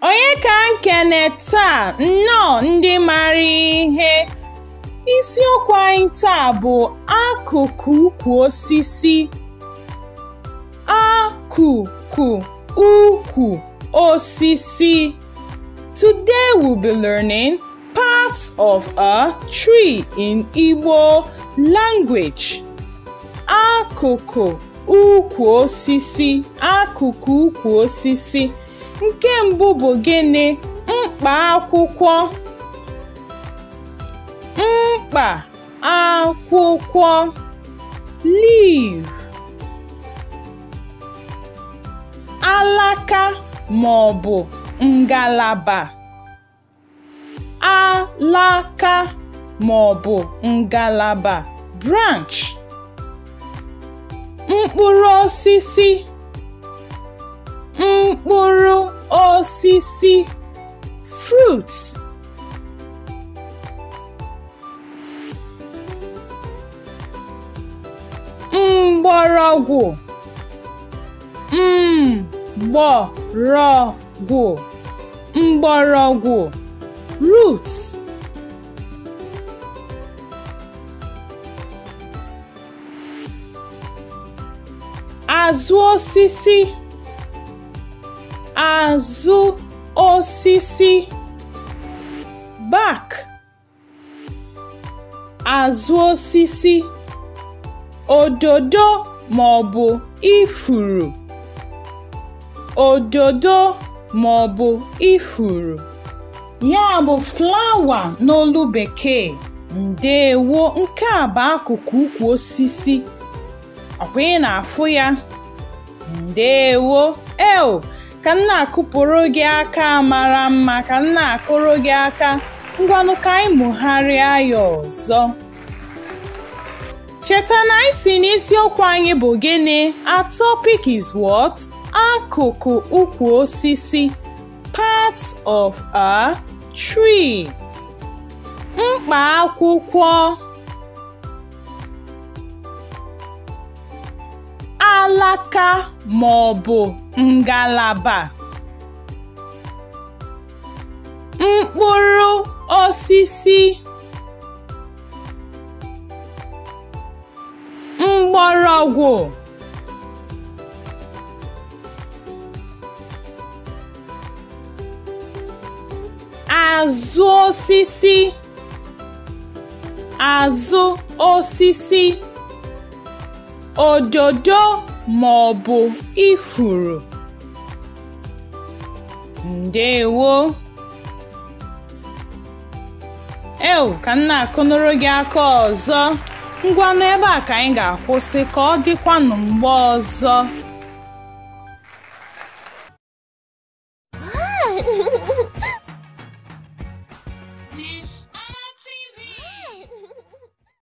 Onye ka nkene taa nnọọ ndị mara ihe isiokwu anyị taa bụ akụkụ ukwu osisi akụkụ ukwu osisi today we'll be learning parts of a tree in Igbo language. Akụkụ ukwu osisi Akụkụ ukwu osisi nke mbụ bụ gịnị? Mkpa akwụkwọ mkpa akwụkwọ leave, alaka ma ọ bụ ngalaba laka ma ọ bụ ngalaba (branch), mkpụrụ osisi, mkpụrụ osisi (fruit), mgbọrọgwụ mgbọrọgwụ mgbọrọgwụ (roots) azụ osisi azụ osisi bak, azụ osisi ododo ma ọ bụ ifuru ododo ma ọ bụ ifuru ya bụ flawa n'olu bekee ndeewo nke a bụ akụkụ ukwu osisi ọkwa ị na-afụ ya ndewo eo ka m na-akụpụrụ gị aka mara mma ka m akụrụ gị aka ngwanụ ka anyị mụgharịa ya ọzọ cheta na anyị si n'isiokwu anyị bụ gịnị a is what akụkụ ukwu osisi part of a tree mkpa akwụkwọ Aka ma ọ bụ ngalaba. Mkpụrụ osisi mgbọrọgwụ azụ osisi azụ osisi ododo ma ọ bụ ifuru ndeewo ewu ka m na-akụnụrụ gị aka ọzọ ngwa ebe a ka anyị ga-akwụsị ka ọ dịkwanụ mgbe ọzọ